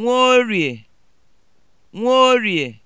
Nworie (Nworie)